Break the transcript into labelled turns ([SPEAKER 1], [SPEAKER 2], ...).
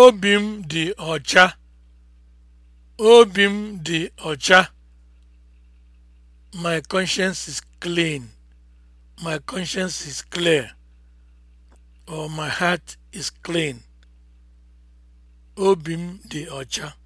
[SPEAKER 1] Obi m dị ọcha. Obi m dị ọcha. My conscience is clean. My conscience is clear. Or my heart is clean.
[SPEAKER 2] Obi m dị ọcha.